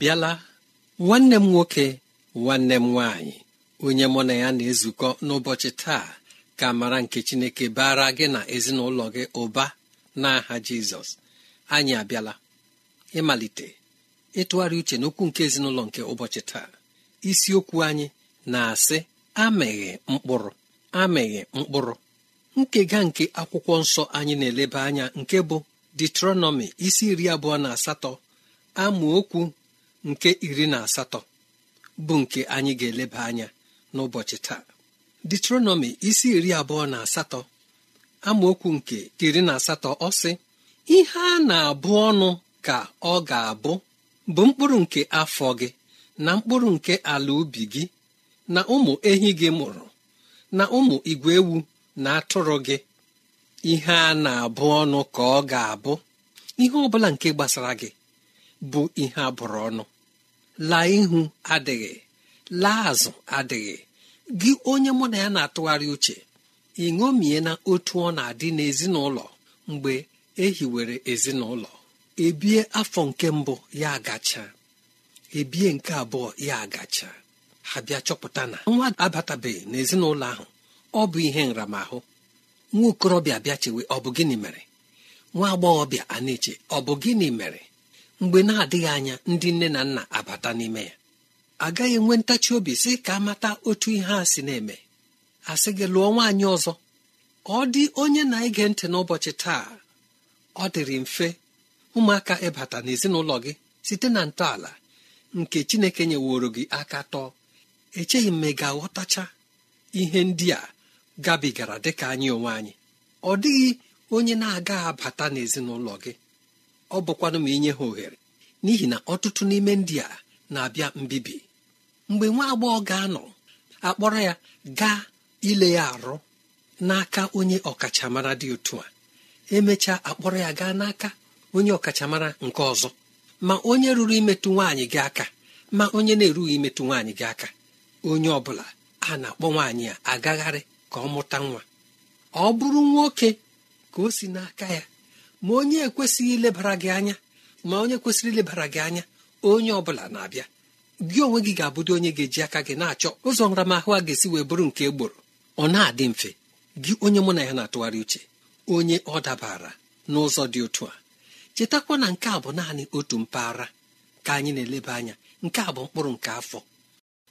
bịala nwanne m nwoke nwanne m nwaanyị onye mụ na ya na-ezukọ n'ụbọchị taa ka mara nke chineke bara gị na ezinụlọ gị ụba n'aha jizọs anyị abịala ịmalite ịtụgharị uche n'okwu nke ezinụlọ nke ụbọchị taa isiokwu anyị na-asị amịghị mkpụrụ amịghị mkpụrụ nkega nke akwụkwọ nsọ anyị na-eleba anya nke bụ detronomi isi iri abụọ na asatọ amaokwu nke iri na asatọ bụ nke anyị ga-eleba anya n'ụbọchị taa detronomi isi iri abụọ na asatọ amaokwu nke iri na asatọ ọ sị ihe a na-abụ ọnụ ka ọ ga-abụ bụ mkpụrụ nke afọ gị na mkpụrụ nke ala ubi gị na ụmụ ehi gị mụrụ na ụmụ igwe ewu na atụrụ gị ihe a na-abụ ọnụ ka ọ ga-abụ ihe ọ bụla nke gbasara gị bụ ihe abụrụ ọnụ laa ihu adịghị laa azụ adịghị gị onye mụ na ya na-atụgharị uche ị ṅomie na otu ọ na-adị n'ezinụlọ mgbe ehiwere ezinụlọ ebie afọ nke mbụ ya agacha ebie nke abụọ ya agacha ha bịa chọpụta na nwa abatabeghị n'ezinụlọ ahụ ọ bụ ihe nramahụ nwa okorobịa bịa chewe ọ bụ gịnị mere nwa agbọghọbịa a na-eche ọ bụ gịnị mere mgbe na-adịghị anya ndị nne na nna n'ime ya agaghị enwe ntachi obi sị ka amata otu ihe a si na-eme asị gị lụọ nwaanyị ọzọ ọ dị onye na-ege ntị n'ụbọchị taa ọ dịrị mfe ụmụaka ịbata n'ezinụlọ gị site na ntọala nke chineke nyeworo gị aka tọọ echeghị m ma ga-aghọtacha ihe ndị a gabigara dịka anyị onwe anyị ọ dịghị onye na-agaghị abata n'ezinụlọ gị ọ bụkwanụ ma inye ha ohere n'ihi na ọtụtụ n'ime ndị a na-abịa mbibi mgbe nwa agbọghọ ga-anọ akpọrọ ya gaa ile ya arụ n'aka onye ọkachamara dị otu a emecha akpọrọ ya gaa n'aka onye ọkachamara nke ọzọ ma onye ruru imetụ nwaanyị gị aka ma onye na-erughị imetụ nwaanyị gị aka onye ọ bụla a na-akpọ nwaanyị a agagharị ka ọ mụta nwa ọ bụrụ nwoke ka o si n'aka ya ma onye ekwesịghị ilebara gị anya ma onye kwesịrị ilebara gị anya onye ọ bụla na-abịa gị onwe gị ga-abụdo onye ga-eji aka gị na-achọ ụzọ nramahụ a ga-esi wee bụrụ nke egboro ọ na-adị mfe gị onye mụ na ya na-atụgharị uche onye ọ dabara n'ụzọ dị otu a chetakwa na nke a bụ naanị otu mpaghara ka anyị na-eleba anya nke a bụ mkpụrụ nke afọ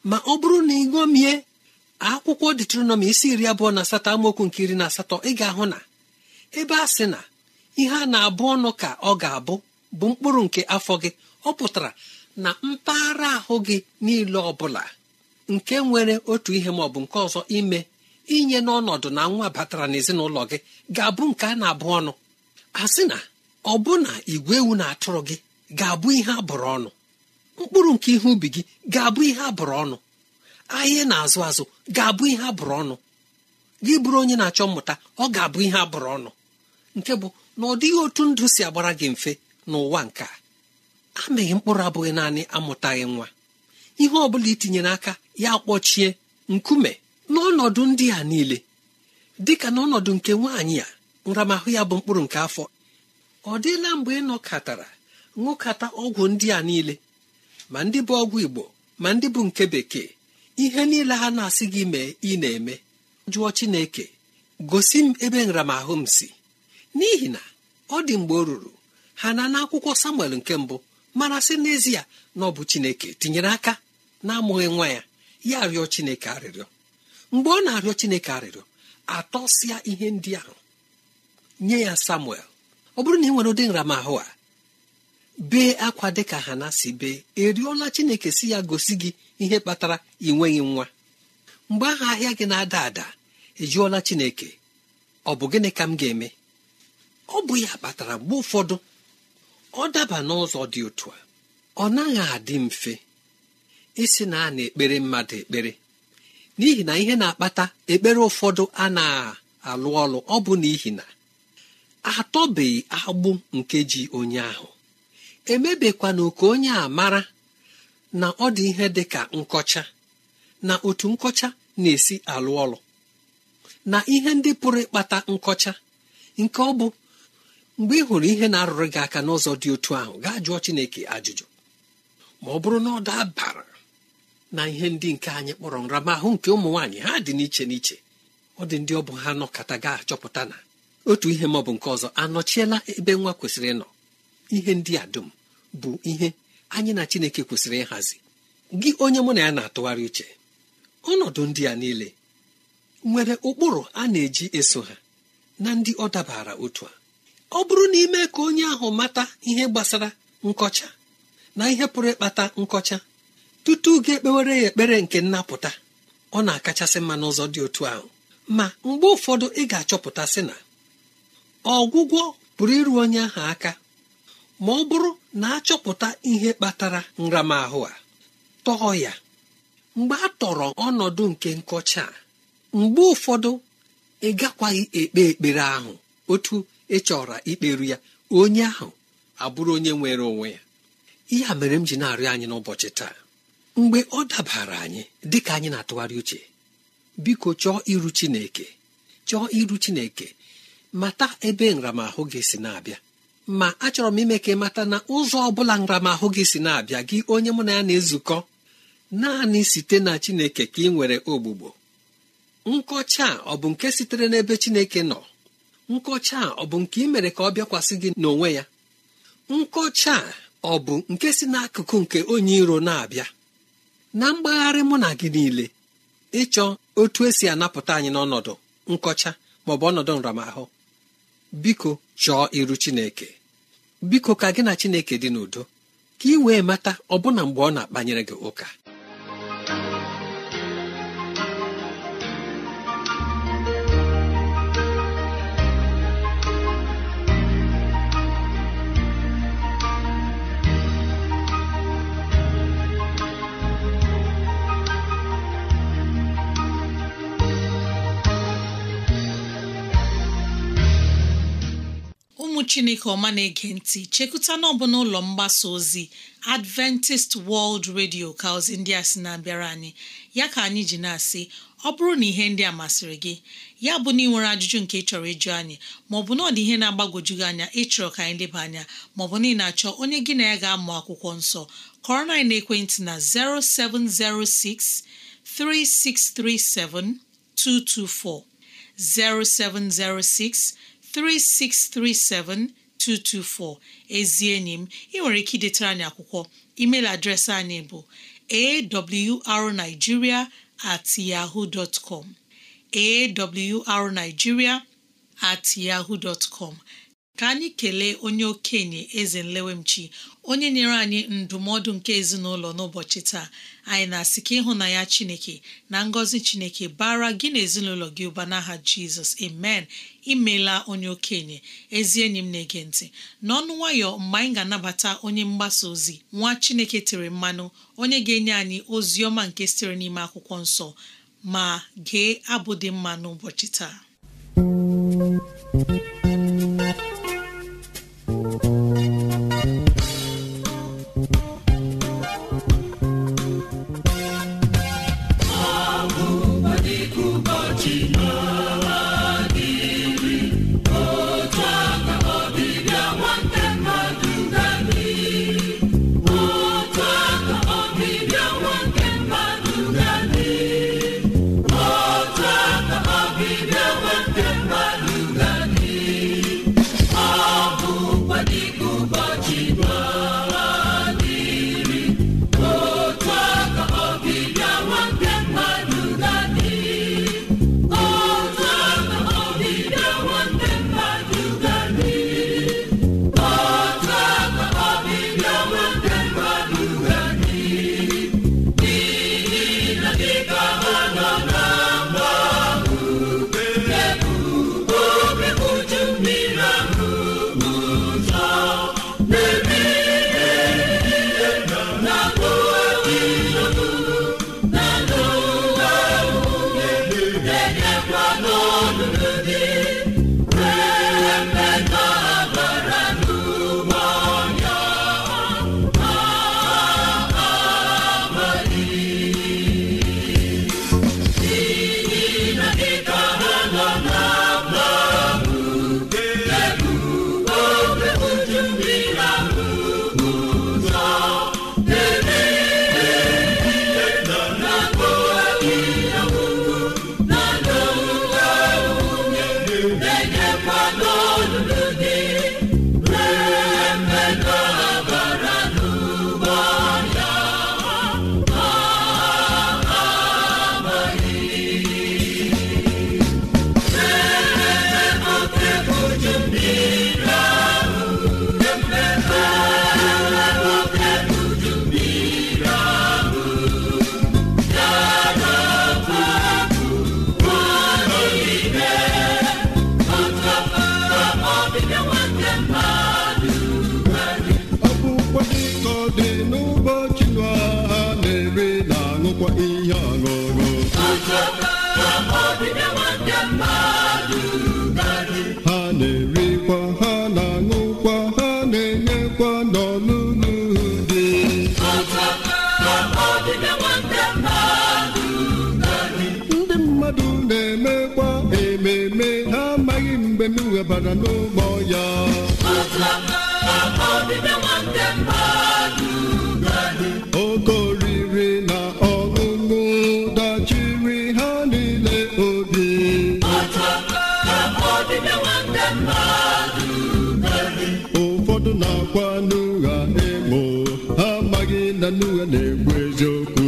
ma ọ bụrụ na ị ṅomie akwụkwọ detronọmi isi iri abụọ na asatọ amaokwu nke iri na asatọ ị ga-ahụ na ebe a sị na ihe a na-abụ ọnụ ka ọ ga-abụ bụ mkpụrụ nke afọ gị ọ pụtara na mpaghara ahụ gị niile ọ bụla nke nwere otu ihe ma ọ bụ nke ọzọ ime inye n'ọnọdụ na nwa batara n'ezinụlọ gị ga-abụ nke a na-abụ ọnụ a sị na ọ bụ na igwe ewu na atụrụ gị ga-abụ ihe a bụrụ ọnụ mkpụrụ nke ihe ubi gị ga-abụ ihe a bụrụ ọnụ ahịa na-azụ azụ ga-abụ ihe a bụrụ ọnụ gị bụrụ onye na-achọ mmụta ọ ga-abụ ihe a bụrụ ọnụ nke bụ na ọ dịghị otu ndụ si agbara gị mfe n'ụwa nke a amịghị mkpụrụ abụghị naanị amụtaghị nwa ihe ọ bụla itinyere aka ya kpọchie nkume n'ọnọdụ ndị a niile dịka n'ọnọdụ nke nwaanyị a nramahụ ya bụ mkpụrụ nke afọ ọ dịla mgbe ị nọkatara ṅụkata ọgwụ ndị a niile ma ndị bụ ọgwụ igbo ma ndị bụ nke bekee ihe niile ha na-asị gị mee ị na-eme jụọ chineke gosi m ebe nramahụ m si n'ihi na ọ dị mgbe ọ ruru ha na n'akwụkwọ samuel nke mbụ mara sị n'ezie na ọ bụ chineke tinyere aka na-amụghị nwa ya ya arịọ chineke arịrịọ mgbe ọ na-arịọ chineke arịrịọ atọsịa ihe ndị ahụ nye ya samuel ọ bụrụ na ị nwere ụdị nramahụ a bee akwa dịka ha na si bee eriola chineke si ya gosi gị ihe kpatara ị nwa mgbe ahụ ahịa gị na-ada ada ejụọla chineke ọ bụ gịnị ka m ga-eme ọ bụ ya kpatara mgbe ụfọdụ ọ daba n'ụzọ dị otu a ọ naghị adị mfe isi na a na-ekpere mmadụ ekpere n'ihi na ihe na-akpata ekpere ụfọdụ a na-alụ ọlụ ọ bụ n'ihi na atọbeghị agbụ nkeji ji onye ahụ na ka onye a mara na ọ dị ihe dị ka nkọcha na otu nkọcha na-esi alụ ọlụ na ihe ndị pụrụ ịkpata nkọcha nke ọ bụ mgbe ị hụrụ ihe na-arụrụ gị aka n'ụzọ dị otu ahụ gaa jụọ chineke ajụjụ ma ọ bụrụ na ọ dabara na ihe ndị nke anyị kpọrọ nramahụ nke ụmụ nwaanyị ha dị n'iche n'iche ọ dị ndị ọ bụ ha nọkọta ga-achọpụta na otu ihe maọbụ nke ọzọ anọchiela ebe nwa kwesịrị ịnọ ihe ndị a dum bụ ihe anyị na chineke kwesịrị ịhazi gị onye mụ na ya na-atụgharị uche ọnọdụ ndị a niile nwere ụkpụrụ a na-eji eso ha na ndị ọ dabara otu a ọ bụrụ na ime ka onye ahụ mata ihe gbasara nkọcha na ihe pụrụ ịkpata nkọcha tutu gị ekpewere ya ekpere nke nnapụta ọ na-akachasị mma n'ụzọ dị otu ahụ ma mgbe ụfọdụ ị ga-achọpụta sị na ọgwụgwọ pụrụ iru onye ahụ aka ma ọ bụrụ na achọpụta ihe kpatara nramahụ a tọọ ya mgbe a tọrọ ọnọdụ nke nkọcha a mgbe ụfọdụ ị gakwaghị ekpe ekpere ahụ otu ị chọrọ ikperu ya onye ahụ abụrụ onye nwere onwe ya ihe a mere m ji na-arịọ anyị n'ụbọchị taa mgbe ọ dabara anyị dị ka anyị na-atụgharị uche biko chọọ iru chineke chọọ iru chineke mata ebe nramahụ gị si na-abịa ma achọrọ m ime ka ị mata na ụzọ ọ bụla nramahụ gị si na-abịa gị onye mụ na ya na-ezukọ naanị site na chineke ka ị nwere ogbugbo nkọcha ọ bụ nke sitere n'ebe chineke nọ nkọcha a ọ bụ nke ị mere ka ọ bịakwasị gị n'onwe ya nkọcha a ọ bụ nke si n'akụkụ nke onye iro na-abịa na mgbagharị mụ na gị niile ịchọ otu esi anapụta anyị n'ọnọdụ nkọcha maọbụ ọnọdụ nramahụ biko chọọ iru chineke biko ka gị na chineke dị n'udo ka ị wee mata ọbụna mgbe ọ na-akpanyere gị ụka chineke ọma na-ege ntị chekụta n'ọbụ n'ụlọ mgbasa ozi adventist world radio ka ozi ndị a sị na-abịara anyị ya ka anyị ji na-asị ọ bụrụ na ihe ndị a masịrị gị ya bụ na ị nwere ajụjụ nke ịchọrọ ịjụ anyị maọbụ na ọ dị ihe na-agbagwoju gị anya ịchọrọ ka anyị leba anya maọbụ na ị na-achọ onye gị na ya ga-amụ akwụkwọ nsọ kọrọ na ekwentị na 0706 0706 3637224 ezi enyi m ị nwere ike idetara anyị akwụkwọ email adreesị anyị bụ awrnigeria at yahoo dot com awrnigeria at yahoo com ka anyị kelee onye okenye eze nlewemchi onye nyere anyị ndụmọdụ nke ezinụlọ n'ụbọchị taa anyị na-asị ka ịhụnanya chineke na ngọzi chineke bara gị na ezinụlọ gị ụba n'aha jizọs amen imela onye okenye ezi enyi m na-ege ntị n'ọnụ nwayọ mgbe anyị ga-anabata onye mgbasa ozi nwa chineke tere mmanụ onye ga-enye anyị ozi ọma nke sitere n'ime akwụkwọ nsọ ma gee abụ dị mma n'ụbọchị taa Worthy we bara no more ya. na ọṅụṅụ dachiri ha niile obi. Ụfọdụ na-akwa n'ụgha ha amaghị na n'ụgha na ekwu eziokwu.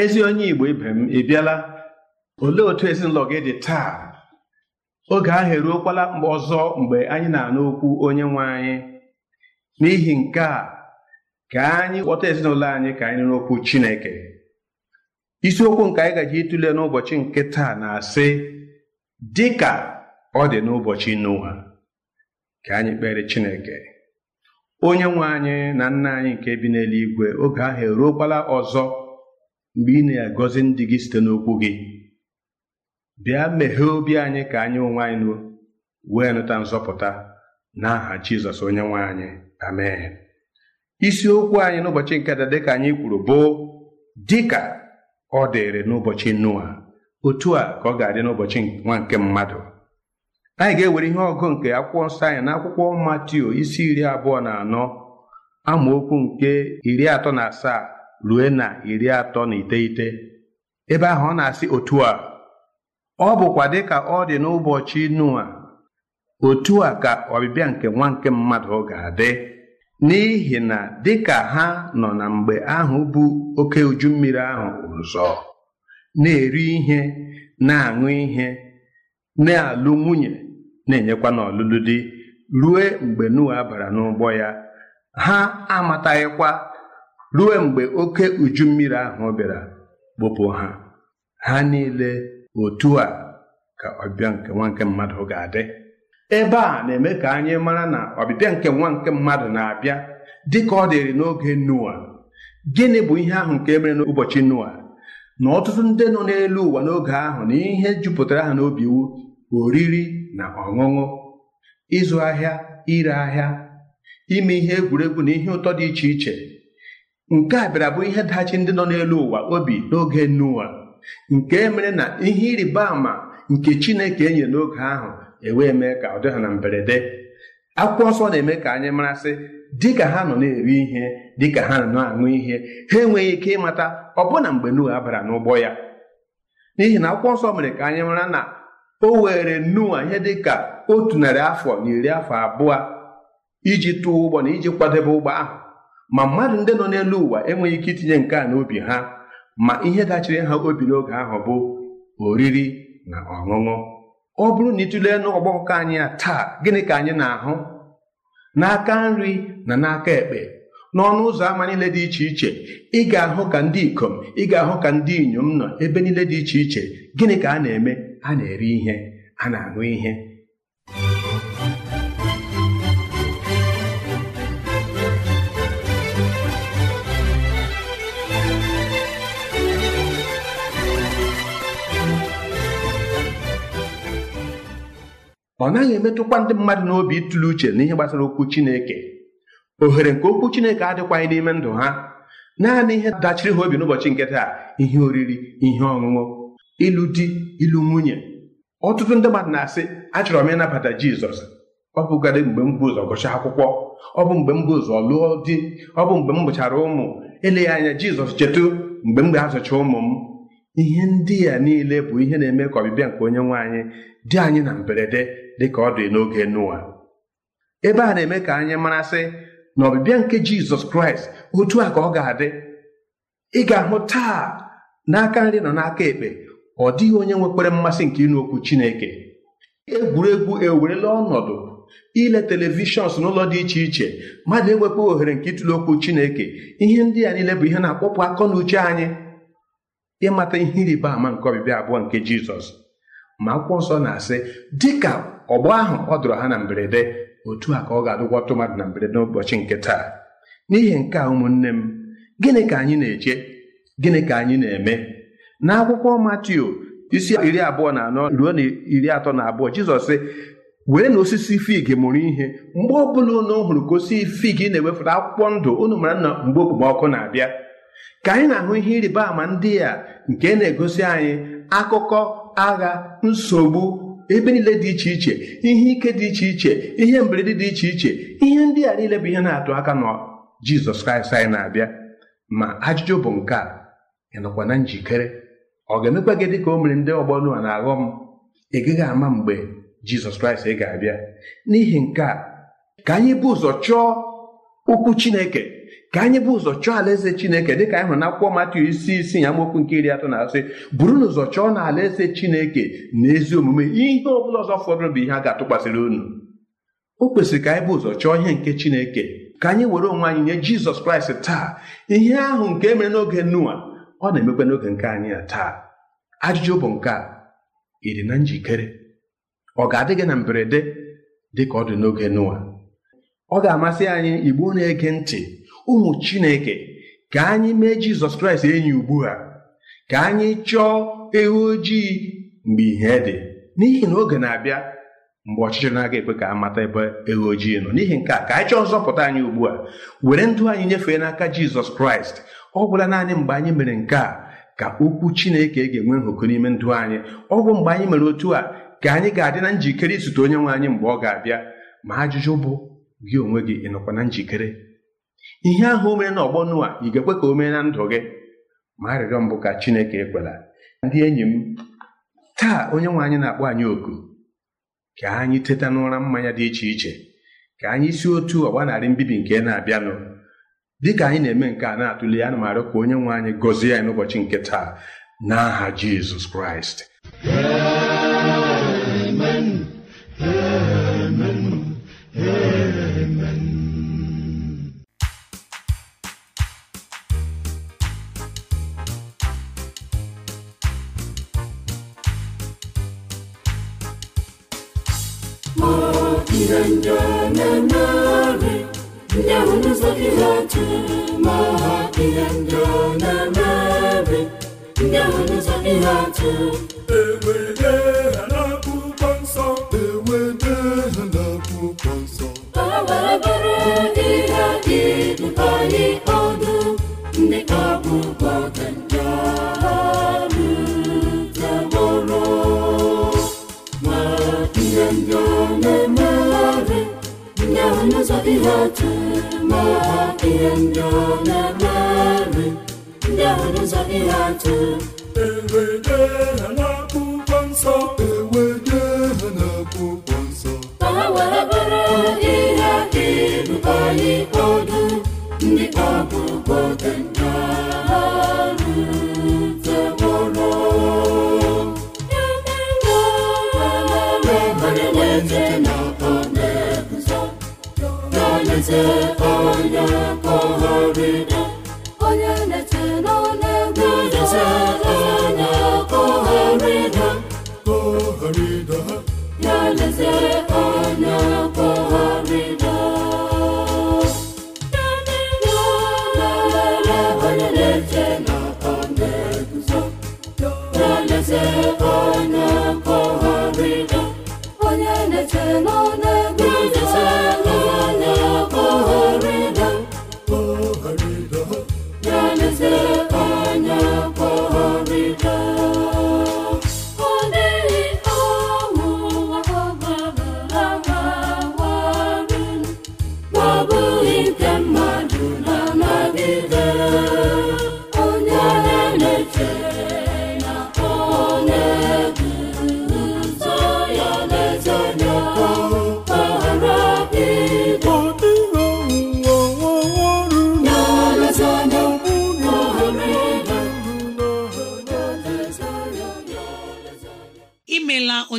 ezi onye Igbo ibe m ị bịala olee otu ezinụlọ gị dị taa oge ahụ eruokwala ọzọ mgbe anyị na-anụ okwu onye nwe anyị n'ihi nke a ka anyị kpọta ezinụlọ anyị ka anyị n'okwu Chineke isiokwu nke anyị gaji ịtụle n'ụbọchị nke taa na-asị dị ka ọ dị n'ụbọchị n'ụwa ka anyị kpere Chineke onye nwe anyị na nna anyị nke bi n'eluigwe oge ahụ eruokwala ọzọ mgbe ị na-agọzi ndị gị site n'okwu gị bịa meghee obi anyị ka anyị onwe anyị nuo wee nụta nzọpụta n'aha Jizọs onye nwe anyị amen isiokwu anyị n'ụbọchị nke taa dịka anyị kwuru bụ dịka ọ dịrị n'ụbọchị Noa otu a ka ọ ga-adị n'ụbọchị nwa nke mmadụ anyị ga-ewere ihe ọgụ nke akwụkwọ nsọ anyị na akwụkwọ Matio isi iri abụọ na anọ amaokwu nke iri atọ na asaa rue na iri atọ na iteghete ebe ahụ ọ na-asị otu a ọ bụkwa dịka ọ dị n'ụbọchị Noa otu a ka ọbịbịa nke nwa nke mmadụ ga-adị n'ihi na dịka ha nọ na mgbe ahụ bụ oke uju mmiri ahụ ụzọ na-eri ihe na-aṅụ ihe na-alụ nwunye na-enyekwa n'ọlụlụ di rue mgbe nua bara n'ụgbọ ya ha amataghịkwa ruo mgbe oke uju mmiri ahụ bịara kpụpụ ha ha niile otu a ka ọbịa nke nwa nke mmadụ ga-adị ebe a na-eme ka anyị mara na ọbịbịa nke nwa nke mmadụ na-abịa dị ka ọ dịrị n'oge Noa gịnị bụ ihe ahụ nke mere n'ụbọchị Noa na ọtụtụ ndị nọ n'elu ụwa n'oge ahụ na ihe jupụtara ha n'obi iwu oriri na ọṅụṅụ ịzụ ahịa ire ahịa ime ihe egwuregwu na ihe ụtọ dị iche iche nke a bịara bụ ihe dachi ndị nọ n'elu ụwa obi n'oge Noa nke mere na ihe ịrịba ama nke Chineke enye n'oge ahụ ewee mee ka ọ dị ha na mberede akwụkwọ nsọ na-eme ka anyị marasị dịka ha nọ na-eri ihe dịka ha nọ na-aṅụ ihe ha enweghị ike ịmata ọbụna mgbe Noa bara n'ụgbọ ya n'ihi na akwụkwọ nsọ mere ka anyị mara na o were Noa ihe dị ka otu narị afọ na iri afọ abụọ iji tụọ ụgbọ na iji kwadebe ụgbọ ahụ ma mmadụ ndị nọ n'elu ụwa enweghị ike itinye nke a n'obi ha ma ihe dachiri ha obi n'oge ahụ bụ oriri na ọṅụṅụ ọ bụrụ na ịtụlee n'ọgbakọ anyị taa gịnị ka anyị na-ahụ n'aka nri na n'aka ekpe n'ọnụ ụzọ ámá niile dị iche iche ị ga-ahụ ka ndị ikom ị ga-ahụ ka ndị inyom nọ ebe niile dị iche iche gịnị ka a na-eme a na-eri ihe a na-aṅụ ihe ọ naghị emetụkwa ndị mmadụ n'obi ịtụle uche n'ihe gbasara okwu Chineke ohere nke okwu Chineke adịkwaghị n'ime ndụ ha naanị ihe dachiri ha obi n'ụbọchị nke taa ihe oriri ihe ọṅụṅụ ịlụ di ịlụ nwunye ọtụtụ ndị mmadụ na-asị achọrọ m ịnabata Jizọs ọ bụgadị mgbe m bụ ụzọ akwụkwọ ọ bụ mgbe m bụ ụzọ lụọ di ọ bụ mgbe m gụchara ụmụ eleghị anya Jizọs chetụ mgbe m ga-azụcha ụmụ m ihe ndị a niile bụ ihe na-eme ka ọbịbịa nke onye nwe anyị dị anyị na mberede dịka ọ dị n'oge n'ụwa ebe a na-eme ka anyị marasị na ọbịbịa nke Jizọs Kraịst otu a ka ọ ga-adị ị ga-ahụ taa n'aka nri nọ n'aka ekpe ọ dịghị onye nwekwara mmasị nke ịnụ okwu Chineke egwuregwu ewerela ọnọdụ ile telivishọn n'ụlọ dị iche iche mmadụ enwekwa ohere nke ịtụle okwu Chineke ihe ndị a niile bụ ihe na-akpọpụ akọ na uche anyị ịmata ihe ịrịba ama nke ọbịbịa abụọ nke Jizọs ma akwụkwọ nsọ na-asị dịka ọgbọ ahụ ọ dụrụ ha na mberede otu a ka ọ ga-adụkwatụ mmadụ na mberede n'ụbọchị nke taa n'ihi nke a ụmụnne m gịnị ka anyị na-eche gịnị ka anyị na-eme n'akwụkwọ Matio, isi iri abụọ na anọ ruo na iri atọ na abụọ Jizọs sị wee na osisi fig mụrụ ihe mgbe ọbụla unu hụrụ ka osisi fig na-ewefụta akwụkwọ ndụ unu mara nna mgbe okpomọkụ na-abịa ka anyị na-ahụ ihe ịrịba ama ndị a nke na-egosi anyị akụkọ agha nsogbu ebe niile dị iche iche ihe ike dị iche iche ihe mberede dị iche iche ihe ndị a niile bụ ihe na-atụ aka na jizọs kraịst anyị na-abịa ma ajụjụ bụ nke a ị na njikere ọ ga-emekwa gị dị ka o mere ndị ọgbọ Noa na aghọm ị gaghị ama mgbe jizọs kraịst ga-abịa n'ihi nke a ka anyị bụ ụzọ chọọ okwu chineke ka anyị bụ ụzọ chọọ alaeze chineke dịka anyị hụrụ na akwụkwọ Matiu isi isi ya mokwu nke iri atọ na asị bụrụ na ụzọ chọọ na alaeze chineke na ezi omume ihe ọ bụla ọzọ fọdụrụ bụ ihe a ga-atụkwasịrị unu o kwesịrị ka anyị bụ ụzọ chọọ ihe nke chineke ka anyị were onwe anyị nye jizọs kraịst taa ihe ahụ nke mere n'oge Noa ọ na-emekwa n'oge nke anyị taa ajụjụ bụ nke a ị dị na njikere ọ ga-adị gị na mberede dị ka ọ dị n'oge nụwa ọ ga-amasị anyị igbo na-ege ntị ụmụ chineke ka anyị mee jizọs kraịst enyi ugbu a ka anyị chọọ ewu ojii mgbe ihe dị n'ihi na oge na-abịa mgbe ọchịchị na-aga ekwe ka a mata ebe ewu ojii nọ n'ihi nke a ka anyị chọọ nzọpụta anyị ugbu a were ndụ anyị nyefee n'aka jizọs kraịst ọ gwụla naanị mgbe anyị mere nke a ka okwu chineke e ga-enwe nhụkụ n'ime ndụ anyị ọ bụ mgbe anyị mere otu a ka anyị ga-adị na njikere izute onye nwe anyị mgbe ọ ga-abịa ma ajụjụ bụ gị onwe gị ịnọkwa na njikere ihe ahụ omena ọgbọnụ na ị ga-ekwe ka o mee na ndụ gị ma arịrịọ mbụ ka Chineke ekwela ndị enyi m taa onye nwe anyị na-akpọ anyị oku ka anyị teta n'ụra mmanya dị iche iche ka anyị si otu ọgba narị mbibi nke na-abịanụ Dị ka anyị na-eme nke a na-atụle ya, ka onye nwe anyị gọzie anyị n'ụbọchị nke taa n'aha Jizọs Kraịst ndịndịnenere ndewụzọ ihe atụmaha ihe ndịnenere ndewụzọ ihe atụ ewere sonia tu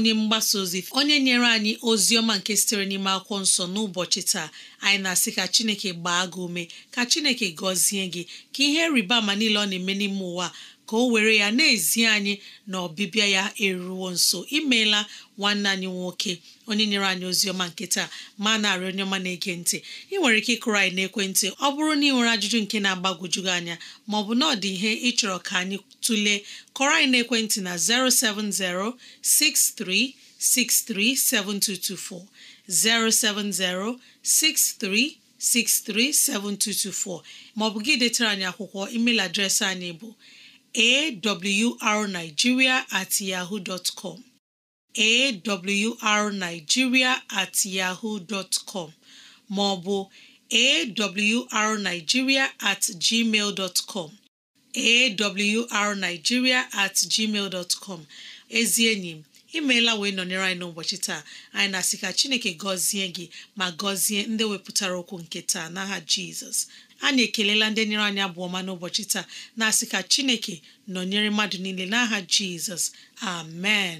onye mgbasa ozi onye nyere anyị ozi ọma nke sitere n'ime akwụkwọ nsọ n'ụbọchị taa anyị na-asị ka chineke gbaa gị ume ka chineke gọzie gị ka ihe rịba ama niile ọ na-eme n'ime ụwa ka o were ya na-ezi anyị na ọbịbịa ya eruwo nso imeela nwanne anyị nwoke onye nyere anyị ozi ọma nke taa ma narị onye ọma na-ege ntị ị nwere ike ịkụrụ anyị n'ekwentị ọ bụrụ na ị nwere ajụjụ nke na-agbagwoju gị anya ma ọ bụ na ọ dị ihe ịchọrọ ka anyị Tule kọrọ anyị n'ekwentị na 070 6363 7224 070 6363 7224 maọbụ gị detara anyị akwụkwọ email adreesị anyị bụ awrnigeria at yahoo dot com awrnigeria maọbụ awrnigeria awrnigeria at gmail dot com ezi enyi m imeela wee nọnyere anyị n'ụbọchị taa anyị na-asị ka chineke gọzie gị ma gọzie ndị wepụtara okwu nke taa n'aha jizọs anyị ekelela ndị nyere anyị abụọ ọma n'ụbọchị taa na-asị ka chineke nọnyere mmadụ niile n'aha jizọs amen